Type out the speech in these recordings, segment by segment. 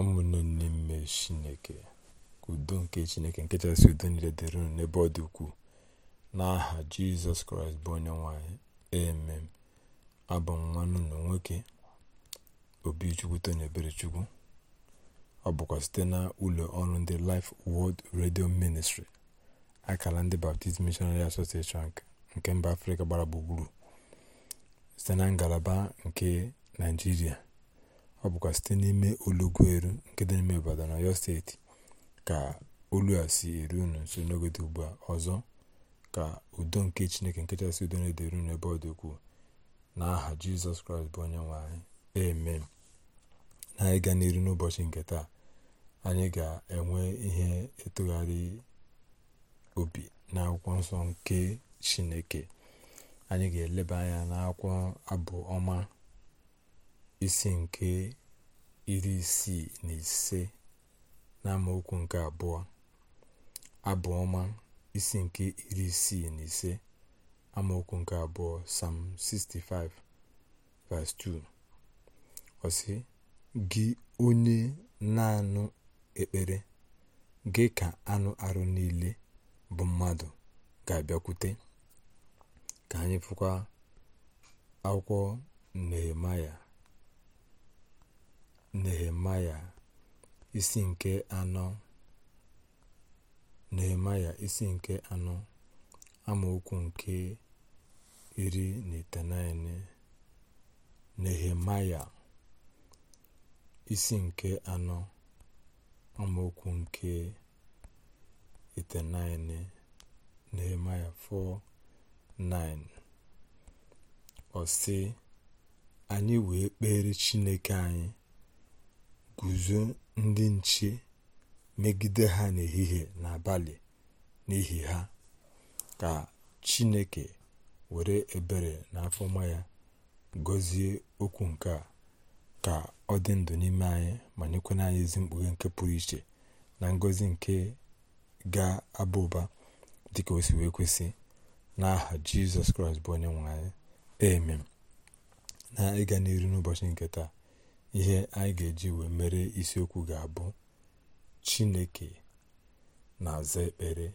ụmụnne n'ime chineke udo nke chineke nke chasị udo niile dịrị unu n'ebe ọ dị ukwuu n'aha jizọs kraịst bụ onye nwanyị emem abụ nwanne na nwoke obichukwu tony eberechukwu ọ bụkwa site na ụlọ ọrụ ndị life world radio ministry akara ndị baptist missionary association nke mba afrịka gbara gburugburu site na ngalaba nke naijiria ọ bụkwa site n'ime Olugweru nke dị n'ime na Ọyọ steeti ka olu a si eru unu nso n'oge dị ugbu a ọzọ ka udo nke Chineke nke chasị udo na-edere unu ebe ọ dị ukwuu n'aha Jizọs Kraịst bụ onye nwanyị anyị amen na anyị gaa n'iru n'ụbọchị nke taa anyị ga-enwe ihe etogharị obi na akwụkwọ nsọ nke Chineke anyị ga-eleba anya n'akwụkwọ abụ ọma isi nke iri isii na ise na nke abụọ abụ ọma isi nke iri isii na ise amaokwu nke abụọ sam 65 verse 2 gị onye na-anụ ekpere gị ka anụ arụ niile bụ mmadụ ga-abịakwute ka anyị fụkwa akwụkwọ nehemaya nehemaya isi nke anọ nehemaya isi nke anọ amaokwu nke iri na itenaine nehemaya isi nke anọ amaokwu nke itenaine nehemaya 4:9 ọ sị anyị wee kpere chineke anyị guzo ndị nche megide ha n'ehihie na n'abalị n'ihi ha, ka Chineke were ebere na afọma ya gọzie okwu nke a ka ọ dị ndụ n'ime anyị ma nyekwana anyị ezi mkpughe nke pụrụ iche na ngọzi nke ga-aba ụba dịka o si wee kwesị n'aha Jizọs Kraịst bụ onye nwe anyị emem na ịga n'iru n'ụbọchị nke taa ihe anyị ga-eji wee mere isiokwu ga-abụ chineke na-aza ekpere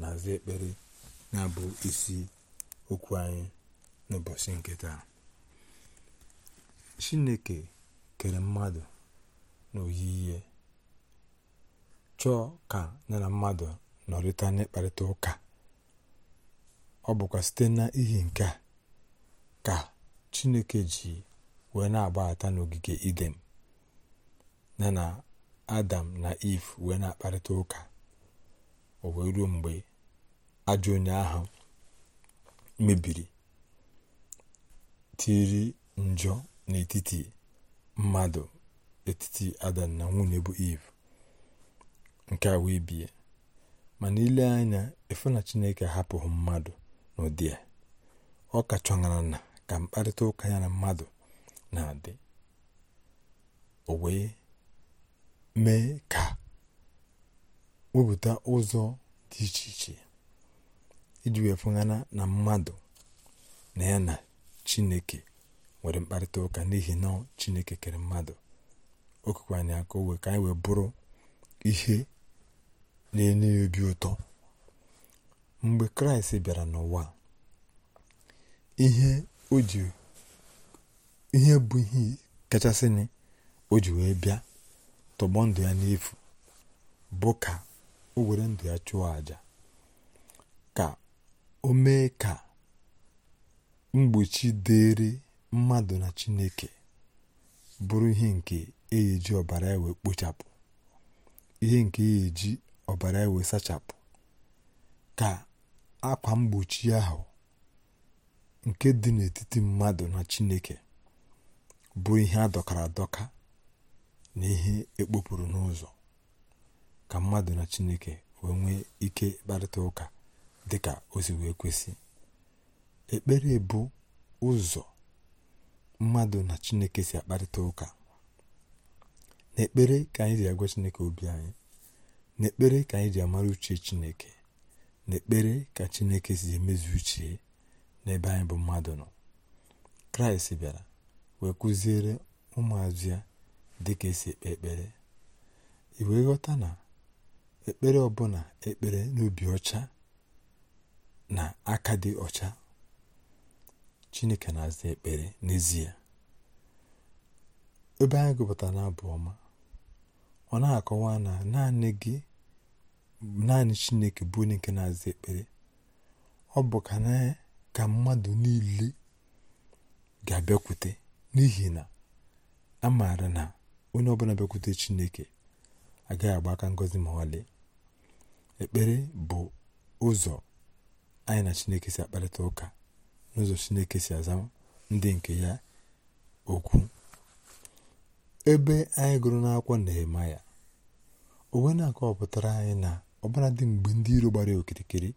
na-aza ekpere na-abụ isi okwu anyị n'ụbọchị nke taa chineke kere mmadụ n'oyiyi chọọ ka ya na mmadụ nọrịta n'ịkparịta ụka ọ bụkwa site n'ihi nke a ka chineke ji wee na-agbahata n'ogige idem na na adam na iv wee na-akparịta ụka o wee ruo mgbe ajọ onye ahụ mebiri tiri njọ n'etiti mmadụ etiti adam na nwunye bụ iv nke a wee bie mana ile anya efu na chineke hapụghị mmadụ n'ụdị a ọ ka chọṅara na ka mkparịta ụka ya na mmadụ na-adị o wee mee ka wepụta ụzọ dị iche iche iji wee fụghana na mmadụ na ya na chineke nwere mkparịta ụka n'ihi na chineke kere mmadụ okekwe na aka owe wee ka anyị wee bụrụ ihe na-enye ya obi ụtọ mgbe kraịst bịara n'ụwa ihe o ji ihe bụ ihe na o ji wee bịa tọgbọ ndụ ya n'efu bụ ka o were ndụ ya chụọ àjà ka o mee ka mgbochi dịrị mmadụ na chineke bụrụ ihe nke eji ọbara ewe kpochapụ ihe nke eji ọbara ewe sachapụ ka akwa mgbochi ahụ nke dị n'etiti mmadụ na chineke bụ ihe adọkara adọka na ihe ekpopụrụ n'ụzọ ka mmadụ na chineke wee nwee ike kparịta ụka dịka o si wee kwesị ekpere bụ ụzọ mmadụ na chineke si akparịta ụka n'ekpere ka anyị ji agwa chineke obi anyị n'ekpere ka anyị ji amara uche chineke n'ekpere ka chineke si emezu uche n'ebe anyị bụ mmadụ nọ kraịst bịara wee kụziere ụmụazụ ya dịka esi ekpe ekpere ị wee ghọta na ekpere ọbụla ekpere n'obi ọcha na aka dị ọcha chineke na-aza ekpere n'ezie ebe anyị gụpụtara n'abụ ọma ọ na-akọwa na naanị gị naanị chineke bụ onye nke na-aza ekpere ọ bụ ka na ka mmadụ niile ga-abịakwute n'ihi na a maara na onye ọbụla bịakwute Chineke agaghị agba aka ngozi ma ọlị ekpere bụ ụzọ anyị na Chineke si akparịta ụka n'ụzọ Chineke si aza ndị nke ya okwu ebe anyị gụrụ n'akwụkwọ Nehemaya onwe na akọwapụtara anyị na ọbụladị mgbe ndị iro gbara okirikiri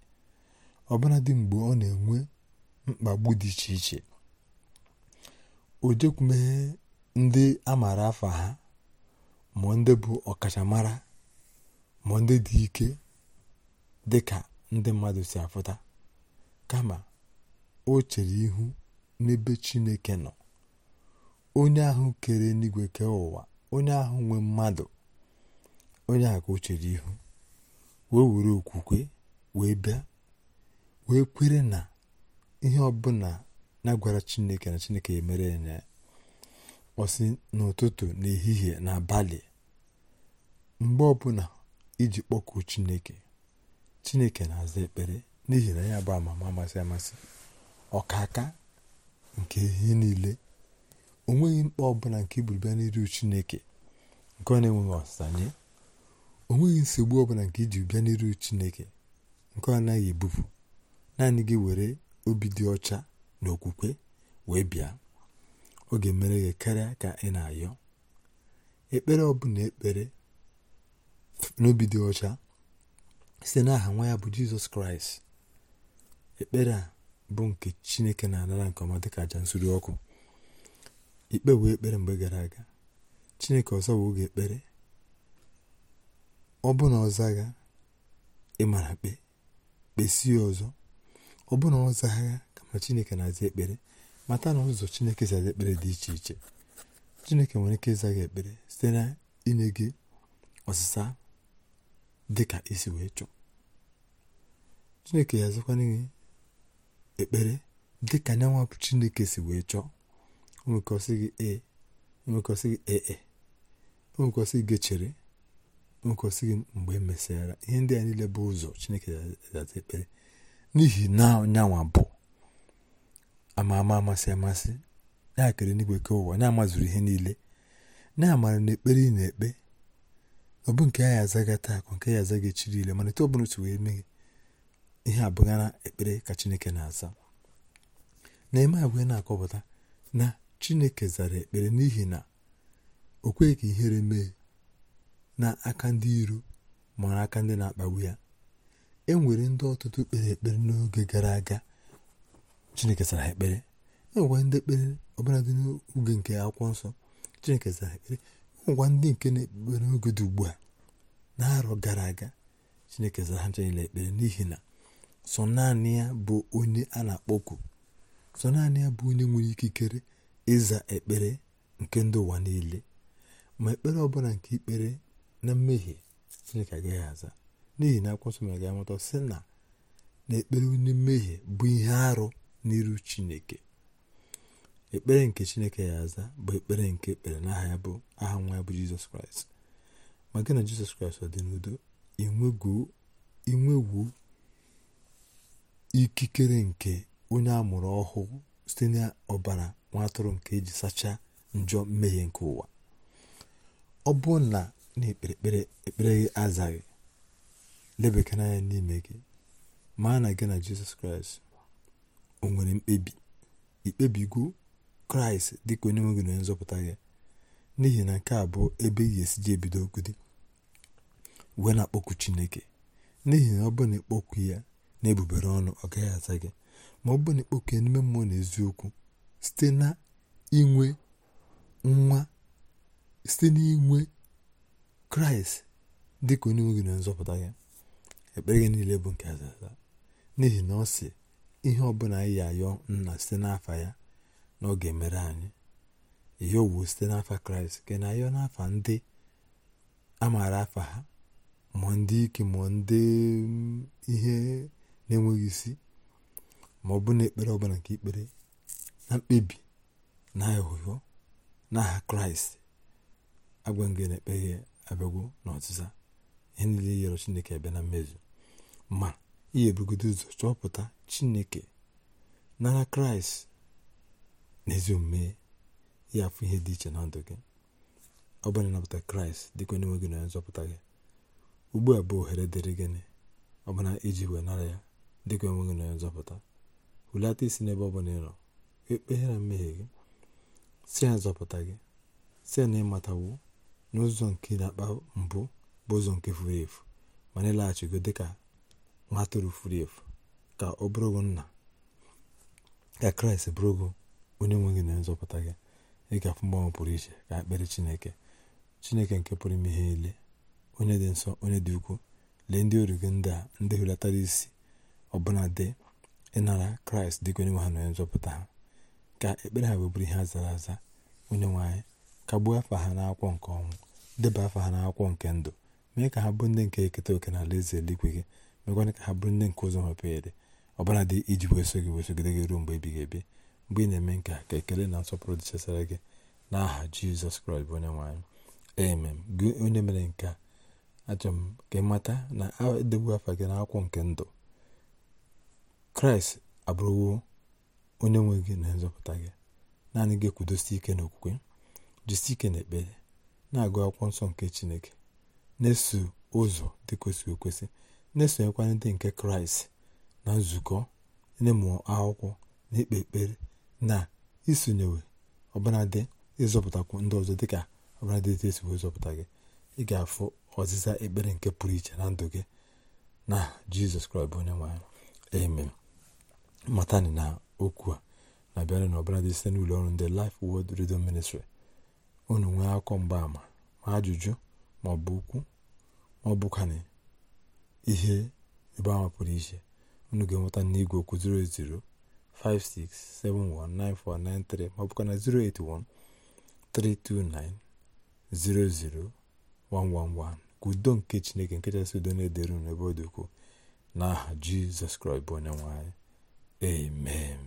ọbụladị mgbe ọ na-enwe mkpagbu dị iche iche o ndị a maara afa ha ma ndị bụ ọkachamara ma ndị dị ike dị ka ndị mmadụ si afụta kama o chere ihu n'ebe chineke nọ onye ahụ kere n'igwe kee ụwa onye ahụ nwe mmadụ onye ahụ ka o chere ihu wee were okwukwe wee bịa wee kwere na ihe ọbụla na-agwara chineke na chineke emere ya ọsị n'ụtụtụ n'ehihie abalị mgbe ọbụla iji kpọkuo chineke chineke na-aza ekpere n'ihi na ya bụ amama amasị amasị ọkaka nke ihe niile o nweghị mkpa ọbụla nke iburu n'iru chineke nke ọ na-enweghị ọsanye o nweghị nsogbu ọbụla nke iji bịa n'iru chineke nke ọ naghị ebupụ naanị gị were obi dị ọcha na okwukwe wee bịa ọ ga-emere gị karịa ka ị na-ayọ ekpere ọ ọbụla ekpere n'obi dị ọcha site n'aha nwa ya bụ jizọs kraịst ekpere a bụ nke chineke na-anara nke ọma dịka aja nsuri ọkụ ikpe wee ekpere mgbe gara aga chineke ọzọ bụ oge ekpere ọ bụ na ọzagha ịmara kpe kpesie ọzọ ọ bụrụ na ọ kama chineke na-aza ekpere mata na ụzọ chineke zara ekpere dị iche iche chineke nwere ike ịzaghị ekpere site na inye gị ọsịsa dị ka isi wee chọọ chineke ya azụkwara gị ekpere dị ka nyanwa chineke si wee chọọ o gị ee o nwekwasị gị ee e", o gị chere o nwekwasị gị mgbe emesịara ihe ndị a niile bụ ụzọ chineke ya ekpere n'ihi na nyanwa bụ ama ama amasị amasị ya kere n'igwe ke ụwa ya amazuru ihe niile na-amara na ekpere ị na-ekpe ọ nke ya azaga taa akụ nke ya azaga echi niile mana etu ọ bụla otu wee mee ihe abụghị na ekpere ka chineke na-aza na-eme abụghị na-akọpụta na chineke zara ekpere n'ihi na o kweghị ka ihere mee na aka ndị iro ma aka ndị na-akpagbu ya e nwere ndị ọtụtụ kpere ekpere n'oge gara aga chineke sara ekpere enwekwa ndị ekpere ọbụladị n'oge nke akwụkwọ nsọ chineke sara ekpere enwekwa ndị nke na-ekpere n'oge dị ugbu a na-arọ gara aga chineke zara ha ekpere n'ihi na sọ naanị ya bụ onye a na-akpọku sọ naanị ya bụ onye nwere ikikere ịza ekpere nke ndị ụwa niile ma ekpere ọbụla nke ikpere na mmehie chineke agaghị aza n'ihi na akwụkwọ nsọ mere ka sị na na ekpere onye mmehie bụ ihe arụ n'iru chineke ekpere nke chineke ya aza bụ ekpere nke ekpere n'aha ya bụ aha nwa ya bụ jizọs kraịst ma gị na jizọs kraịst ọ dị n'udo inwegwu ikikere nke onye amụrụ ọhụụ site n'ọbara nwa atụrụ nke eji sachaa njọ mmehie nke ụwa ọ bụ na na-ekpere ekpere ekpere azaghị lebekara anya n'ime gị maa na gị na jizọs kraịst o nwere mkpebi ikpebigo kraịst dịka onye nwegị gị na nzọpụta gị n'ihi na nke a bụ ebe ị ga-esi ji ebido dị wee na-akpọku chineke n'ihi na ọ bụ na ịkpọku ya na ebubere ọnụ ọ gaghị aza gị ma ọ bụ na ịkpọku ya n'ime mmụọ na eziokwu site na inwe nwa site n'inwe kraịst dịka onye nwe gị na onye nzọpụta ya ekpere gị niile bụ nke azaza n'ihi na ọ si ihe ọbụla anyị ayọ nna site n'afa ya na ọ ga-emere anyị ihe owu site n'afa kraịst nke na ayọ n'afa ndị a maara afa ha mụọ ndị ike mụọ ndị mm, ihe na-enweghị isi ma ọ bụ na ekpere ọbụla nke ikpere na mkpebi na na n'aha kraịst agwa ngị na-ekpeghị abịagwo n'ọzịza ihe niile e yọrọ chineke abịa na mmezu ma ihe ebugodo ụzọ chọpụta chineke nara kraịst n'ezi omume ya afụ ihe dị iche na ndụ gị ọ bụrụ ịnapụta kraịst dịka onye gị na nzọpụta gị ugbu a bụ ohere dịrị gịnị ọbụna iji wee nara ya dịka onye nwe gị na nzọpụta hulata isi n'ebe ọ bụla ị nọ e mmehie gị si ya nzọpụta gị si ya na ịmatawo n'ụzọ nke na-akpa mbụ bụ ụzọ nke furu efu ma na ịlaghachigo dịka ma ha efu ka ọ bụrụgo nna ka kraịst bụrụgo onye nwe gị na nzọpụta gị ịgafe mgbanwe pụrụ iche ka ekpere chineke chineke nke pụrụ ime ihe niile onye dị nsọ onye dị ukwu lee ndị oru gị ndị a ndị isi ọbụla dị ịnara kraịst dịka onye nwe ha na onye nzọpụta ha ka ekpere ha webụrụ ihe a zara aza onye nwe anyị kagbuo afa ha n'akwụkwọ nke ọnwụ deba afa ha n'akwụkwọ nke ndụ mee ka ha bụ ndị nke eketa oke na alaeze eluigwe gị mekwana ka ha bụrụ ndị nke ụzọ mepere ede ọbara dị iji weso gị wesogide gị ruo mgbe ebighị ebi mgbe ị na-eme nke ka ekele na nsọpụrụ dịchasara gị n'aha jizọs kraịst bụ onye nwaanyị amen gị onye mere nke a achọrọ m ka ị mata na edegbu afa gị na akwụkwọ nke ndụ kraịst abụrụwo onye nwe gị na nzọpụta gị naanị gị ekwudosi ike na okwukwe jisi ike na ekpere na-agụ akwụkwọ nsọ nke chineke na-eso ụzọ dị kwesịrị okwesị na-esonyekwa ndị nke kraịst na nzukọ n'ịmụ akwụkwọ na ikpe ekpere na isonyewe ọbụnadị ịzọpụtakwu ndị ọzọ dịka ọbụladị etu esi wee gị ị ga-afụ ọzịza ekpere nke pụrụ iche na ndụ gị na jizọs kraịst bụ onye nwe anyị amen matani na okwu a na-abịara na ọbụladị site n'ụlọ ọrụ ndị Life wod redio ministri unu nwee akụkọ mgbaàmà ma ajụjụ ma ọ bụ okwu ma ọ ihe ebe ahụ pụrụ iche unu ga-enweta n'igwe okwu 08056719493 maọbụkwa na 08132900111 ka udo nke chineke nke kachasị udo na-edere unu ebe ọ dị ukwuu n'aha jizọs kraịst bụ onye nwanyị amen